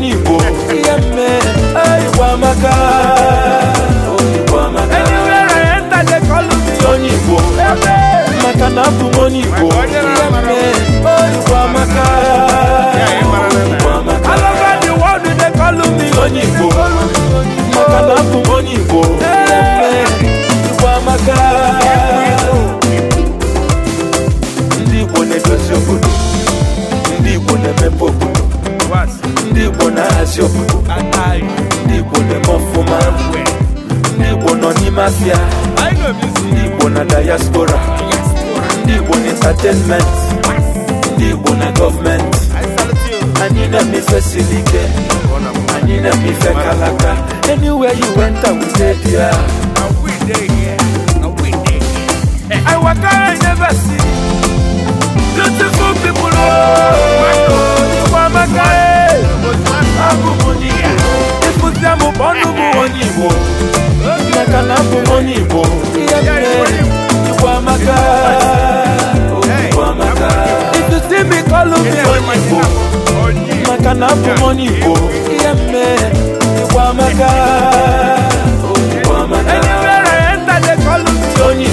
money azị ndị Igbo na ndị Igbo nọ n'ime afịa ndị Igbo na diaspora ndị Igbo na entertainment ndị Igbo na gọọmenti kalaka bụ onye Igbo maka na abụ onye Igbo Igbo amaka amaka onye Igbo maka na abụ onye Igbo ihe mme Igbo amaka amaka Igbo maka na onye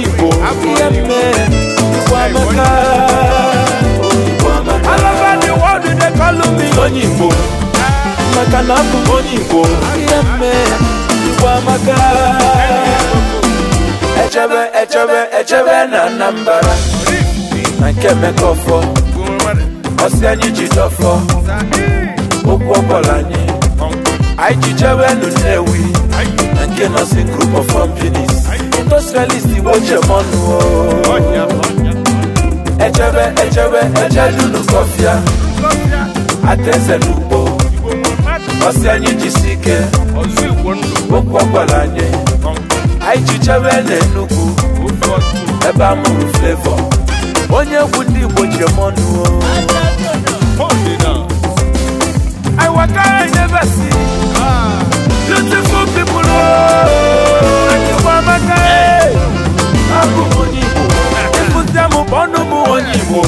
ihe amaka amaka onye Igbo maka na abụ onye Igbo Igbo amaka echebe echebe echebe na Anambra na nke Emeka ọfọ ọsị anyị ji dọfọ okwu ọbọla anyị anyị ji chebe Nnewi na nke nọsi group of companies industrialist Igbo chemọnụ echebe echebe echedunu kọfịa atezelu ọsị anyị jisi ike okwu ọ anyị anyị jichebe ebe amụrụ mụrụ onye egwu ndị Igbo ji m ọnụ I waka never see beautiful people Akịwamaka e. abụ m onye Igbo m ọnụ m onye Igbo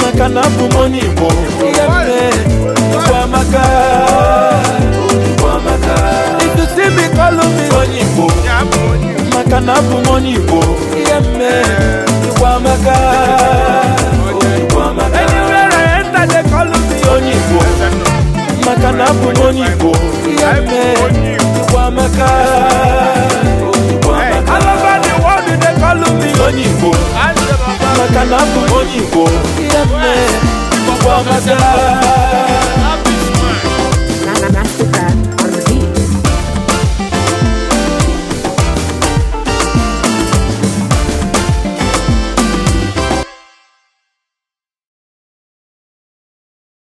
maka na abụ m onye Igbo abụ m onye Igbo ihe mme amaka onye Igbo maka na abụ m onye Igbo ihe mme Igbo amaka onye Igbo maka na abụ m onye Igbo ihe mme amaka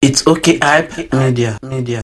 It's okay, hype media.